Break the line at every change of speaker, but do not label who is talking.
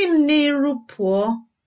si m n'iru pụọ!